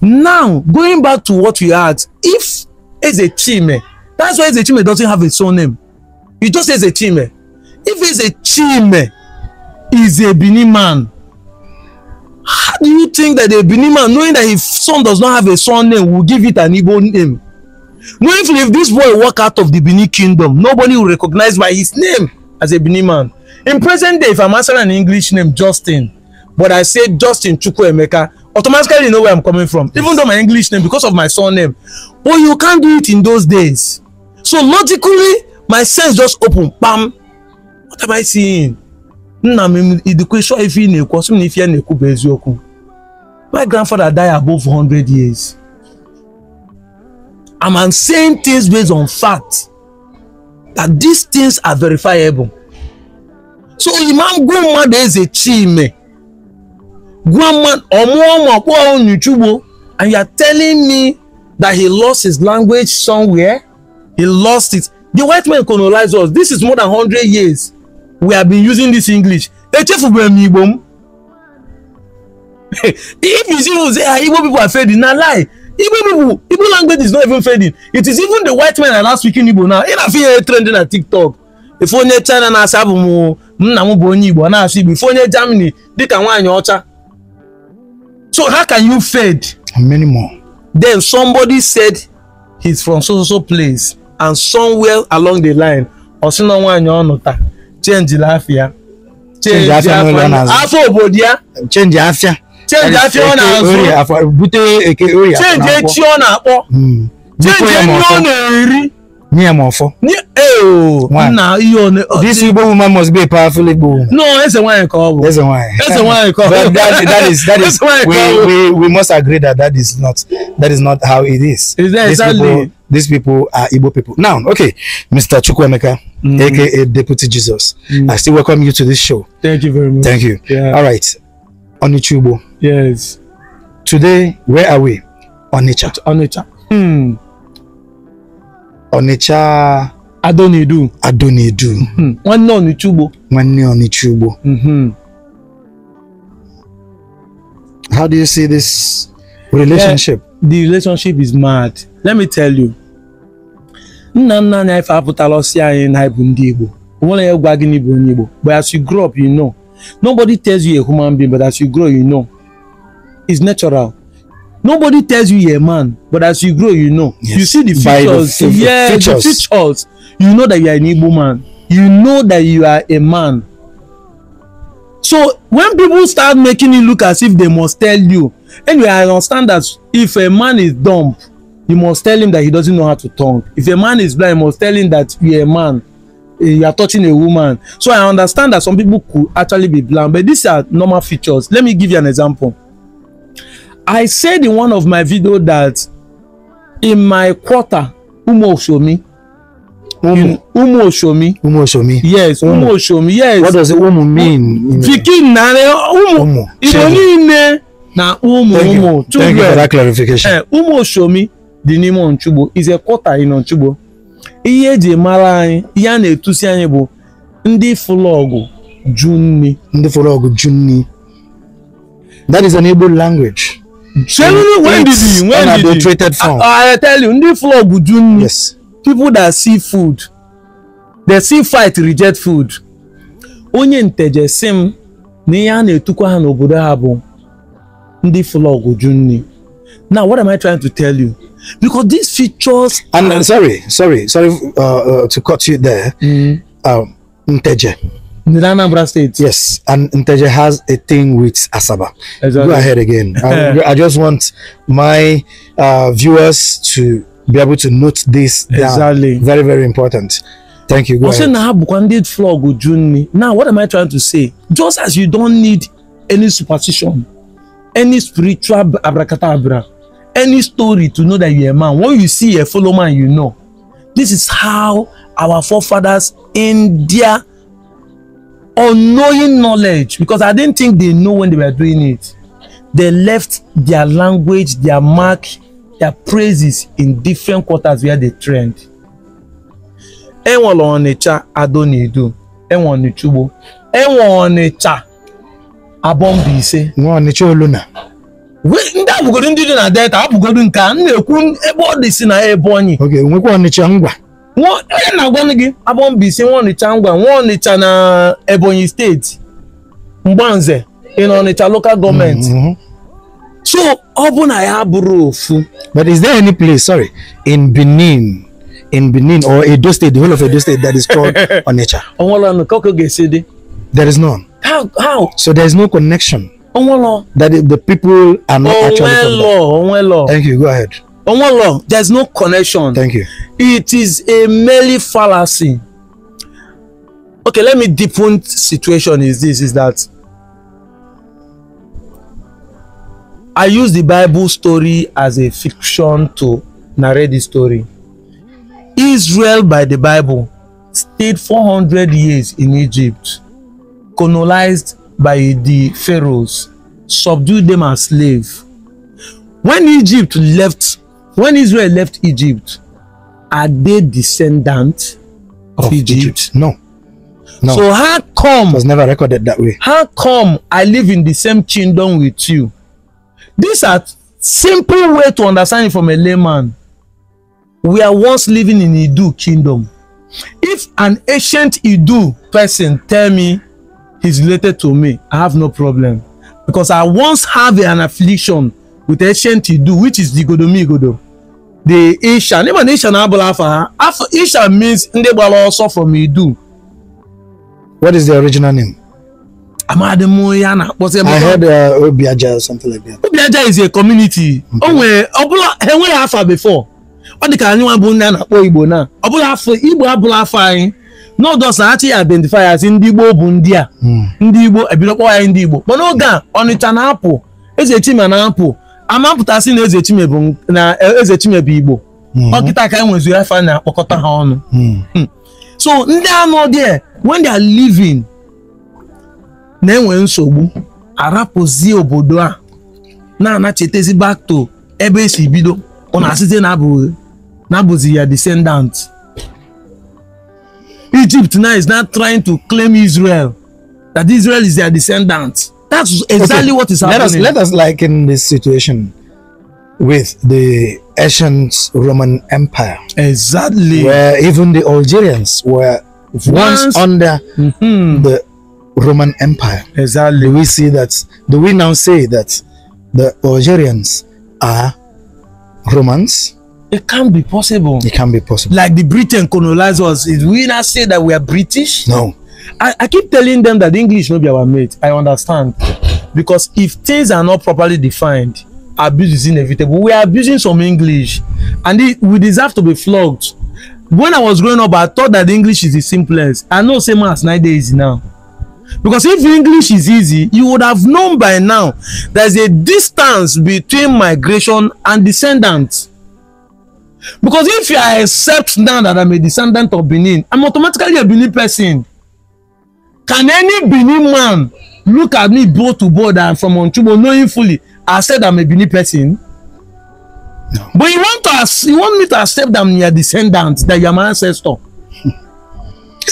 Now, going back to what we had, if a Ezechime, that's why a Ezechime doesn't have a surname name. You just say Ezechime. If a Ezechime is a Benin man, how do you think that a Benin man, knowing that his son does not have a son name, will give it an Igbo name? Knowing if, if this boy walk out of the Benin kingdom, nobody will recognize by his name as a Benin man. In present day, if I'm answering an English name, Justin, but I say Justin Chukwuemeka, automatically know where i'm coming from yes. even though my english name because of my son name. but you can't do it in those days so logically my sense just open pam what am i seeing nna m idikwa ịchọ ife ị na-ekwu na ife na-ekwu bụ eziokwu my grandfather die above 100 years and i'm saying things based on fact that these things are verifiable so imam gwe mmadụ eze chi ime Grandma Omuoma Kwaon Yuchubo, and you are telling me that he lost his language somewhere? He lost it. The white man colonized us. This is more than hundred years. We have been using this English. if you see say ah igbo people are fading na lie igbo people igbo language is not even fading it is even the white men are now speaking igbo now ị na-afụ ihe trend na tiktok efe onye china na-asị abụ m nna m bụ onye igbo na-asị igbo ife onye germany dịka nwaanyị ọcha So how can you fed? many more. Then somebody said he's from so so so place and somewhere along the line ọ̀sìnà nwaanyị ọ̀nụta change láfíà. change afia n'ụlọ n'azụ. afọ obodo ya. change afia. change afia ọ na-azụ. bute eke ori afọ na-akpọ. change echi ọ na hmm. change enyi na-eri. nye m ọfọ eh, oh, nna ihe one oh, this Igbo woman must be a powerful Igbo woman no eze nwanyị I call bụ eze nwanyị eze why I call bụ that, that is that is we, we we must agree that that is not that is not how it is, is that exactly? these people these people are Igbo people now okay Mr. Chukwemeka, mm. aka Deputy Jesus mm. I still welcome you to this show thank you very much thank you yeah. all right Onichugbo yes today where are we Onitsha Onitsha hmm Onitsha Adonidu. Adonidu. Mm -hmm. Nwanne Onitsha Ugbo. Nwanne Onitsha Ugbo. How do you see this relationship? Yeah, the relationship is mad. Let me tell you. Nna nna anyị ife apụtala ọsị anyị na bụ ndị Igbo. Onwere ya gwa gị na ịbụ onye Igbo. But as you grow up, you know. Nobody tells you a human being, but as you grow, you know. It's natural nobody tells you you're a man but as you grow you know yes. you see the features yeah the features you know that you are an igbo man you know that you are a man so when people start making it look as if they must tell you anyway i understand that if a man is dumb you must tell him that he doesn't know how to talk. if a man is blind you must tell him that you're a man eh, you are touching a woman so i understand that some people could actually be blind but these are normal features let me give you an example I said in one of my videos that in my quarter, Umo Oshomi. Umu. Umu Oshomi. Umu Oshomi. Yes, Umu, Umu Oshomi. Yes. What does Umu mean? Fikin na Umu. Umu. Ironi ne na Umu Thank You. Thank you for that clarification. Eh, Umu Oshomi dị n'ime Onchugbo is a quarter in Onchugbo. Ihe eji mara anyị, ihe a na-etusi anyị bụ ndị fụlọgụ ju nni. Ndị fụlọgụ That is an Igbo language. Genuinely, when did he? When did he? form. I, I tell you, ndị flog ju yes. people that see food they see fight reject food. Onye nteje si m na ihe a na-etukwa ha n'obodo ha bụ ndị flog ju nni. Now what am I trying to tell you? Because these features. And uh, sorry, sorry, sorry uh, uh, to cut you there. Mm. Um, nteje. The Anambra State. Yes, and Inteja has a thing with Asaba. Exactly. Go ahead again. I, I just want my uh, viewers to be able to note this down. Exactly. Very, very important. Thank you. Go ahead. Now, what am I trying to say? Just as you don't need any superstition, any spiritual abracadabra, any story to know that you're a man, when you see a fellow man, you know. This is how our forefathers in their unknowing knowledge because I didn't think they know when they were doing it. They left their language, their mark, their praises in different quarters where they trained. Enwere onicha, Adonido, enwere Ọnịchugbo, enwere Ọnịcha Abọmbaise. Nwa Ọnịcha Oluna. Ndị abụgodo ndị dị na Delta abụgodo nke a, m na-ekwu ebe ọ dị si na Ebonyi. Okay, nwekwa onicha ngwa onye na-agwanụ gị abọ mbisi nwa ọnịcha ngwa nwa ọnịcha na ebonyi State. mgbanze in ọnịcha local gọọmenti mm-hmm. so ọ bụ na ya bụrụ ofu but is there any place sorry in benin in benin or edo state the whole of edo state that is called ọnịcha ọnwụlọ ka ọ ga there is none how how so there is no connection ọnwụlọ that the people are not actually from there ọnwụlọ ọnwụlọ thank you go ahead law? there's no connection. Thank you. It is a merely fallacy. Okay, let me deepen situation is this, is that I use the Bible story as a fiction to narrate the story. Israel by the Bible stayed 400 years in Egypt, colonized by the pharaohs, subdued them as slaves. When Egypt left when Israel left Egypt, are they descendants of, of Egypt? Egypt? No. No. So how come it was never recorded that way? How come I live in the same kingdom with you? These are simple way to understand it from a layman. We are once living in Idu kingdom. If an ancient Idu person tell me he's related to me, I have no problem because I once have an affliction with ancient Idu, which is the Godomigodo. The Isha, name and Isha Abulafa. Isha means Ndebala ọsọ from Idu. What is the original name? Amadimoyana. I heard uh, Obiaja or something like that. Obiaja is a community. o Oh, ọbụla ha Henwe Alpha before. Ọ dị ka anyị nwa bụ ndị a na-akpọ Igbo naa ọbụla afọ Igbo abụla afọ anyị not na achị identify as ndị Igbo bụ ndị a hmm. ndị Igbo ebidokpọ ya ndị Igbo mana oge a Ọnịcha na-apụ Eze Chima na-apụ amapụtasị na e, eze chimebu na eze chimebu igbo hmm. ọkịta ka enwezuru afa na-akpọkọta ha ọnụ hmm. Hmm. so ndị anọ there when they are living na-enwe nsogbu arapụzi obodo a na-anachetezi back to ebe esi bido ọ na-asịte na-abụzi ya descendant Egypt now is not trying to claim Israel that Israel is their descendant That's exactly okay. what is happening. Let us, let us liken this situation with the ancient Roman Empire. Exactly. Where even the Algerians were once, once under mm -hmm. the Roman Empire. Exactly. Do we see that? Do we now say that the Algerians are Romans? It can't be possible. It can't be possible. Like the Britain colonizers, we now say that we are British? No. I, I keep telling them that English no be our mate. I understand. Because if things are not properly defined, abuse is inevitable. We are abusing some English and it, we deserve to be flogged. When I was growing up, I thought that English is the simplest. I know same as nine days now. Because if English is easy, you would have known by now there's a distance between migration and descendants. Because if I accept now that I'm a descendant of Benin, I'm automatically a Benin person. Can any Benin man look at me both to both and from Onchubo knowing fully I said I'm a Benin person? No. But you want to you want me to accept that I'm your descendant, that you're my ancestor.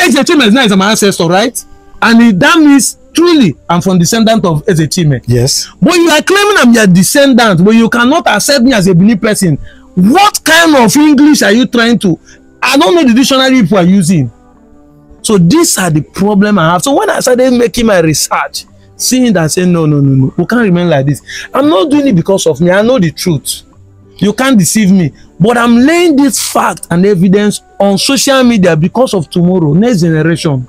Ezechime is not my ancestor, right? And it, that means truly I'm from descendant of Ezechime. Yes. But you are claiming I'm your descendant, but you cannot accept me as a Benin person. What kind of English are you trying to? I don't know the dictionary people are using. So these are the problem I have. So when I started making my research, seeing that saying no, no, no, no, we can't remain like this. I'm not doing it because of me. I know the truth. You can't deceive me. But I'm laying this fact and evidence on social media because of tomorrow, next generation.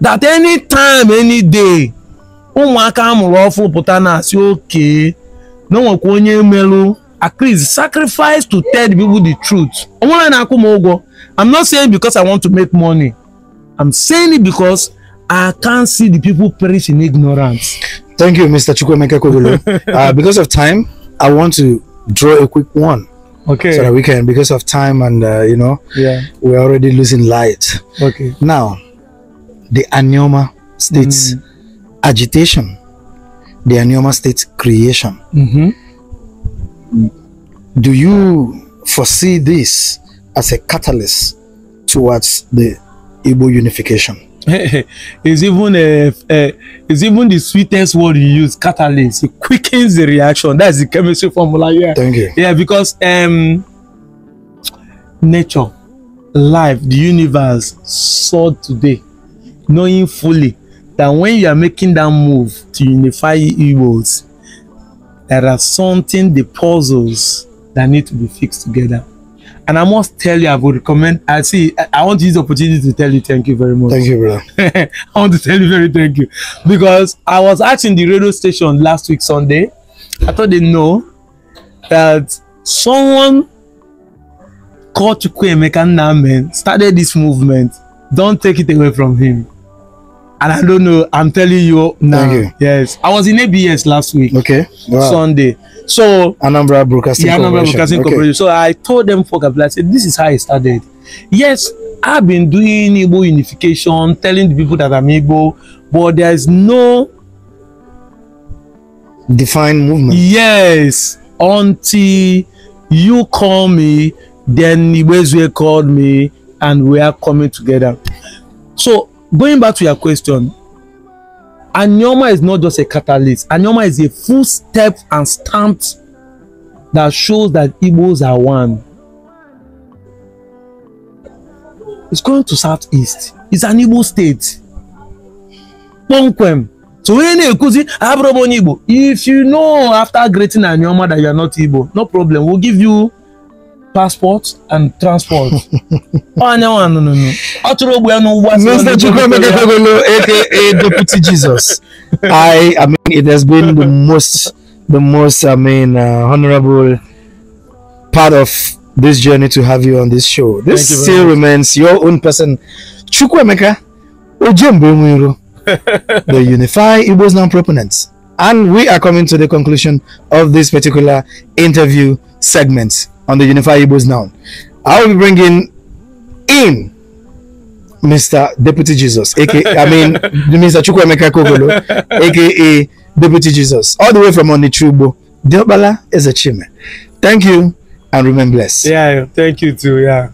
That any time, any day, ụmụaka amụrụ ọfụ pụta na-asị oke na onwekwa onye merụ at sacrifice to tell the people the truth. Onwere na-akwụ m ụgwọ. I'm not saying because I want to make money. I'm saying it because I can't see the people perish in ignorance. Thank you, Mr. Chukwemeka Kogolo. uh, because of time, I want to draw a quick one. Okay. So that we can, because of time and, uh, you know, yeah, we're already losing light. Okay. Now, the Anioma states mm. agitation, the Anioma states creation. Mm -hmm. Do you foresee this as a catalyst towards the Igbo unification. it's even a, a, it's even the sweetest word you use catalyst it quickens the reaction that's the chemistry formula yeah thank you yeah because um nature life the universe saw today knowing fully that when you are making that move to unify Igbos there are something the puzzles that need to be fixed together and I must tell you, I would recommend. I see. I, want to use the opportunity to tell you thank you very much. Thank you, brother. I want to tell you very thank you because I was asking the radio station last week Sunday. I thought they know that someone called Chukwuemeka Nnamen started this movement. Don't take it away from him. and I don't know. I'm telling you now. you. Yes, I was in ABS last week. Okay, wow. Sunday. So Anambra Broadcasting yeah, Anambra Broadcasting okay. So I told them for Kabila, I said this is how I started. Yes, I've been doing Igbo unification, telling the people that I'm Igbo, but there's no defined movement. Yes, until you call me, then Igbezue called me, and we are coming together. So going back to your question Anioma is not just a catalyst Anioma is a full step and stamp that shows that Igbos are one it's going to southeast it's an Igbo state kpọmkwem so onye na-ekwuzi abụrụ m onye Igbo if you know after greeting Anioma that you are not Igbo no problem we'll give you passport and transport. Onye nwa nụnụ nụ. Ọ tụrụ ogbe n'ụgbọ asị. Mr. Chukwuemekagolo aka Deputy Jesus. I, I mean, it has been the most, the most, I mean, uh, honorable part of this journey to have you on this show. This Thank still you remains your own person. Chukwuemeka Ojembe the Unify Igbo's non-proponents. And we are coming to the conclusion of this particular interview segment on the Unified Igbos now. I will be bringing in Mr. Deputy Jesus, aka I mean Mr. Chukwemeka Kogolo, aka Deputy Jesus, all the way from Onichubo. Diobala is a chime. Thank you and remain blessed. Yeah, thank you too. Yeah.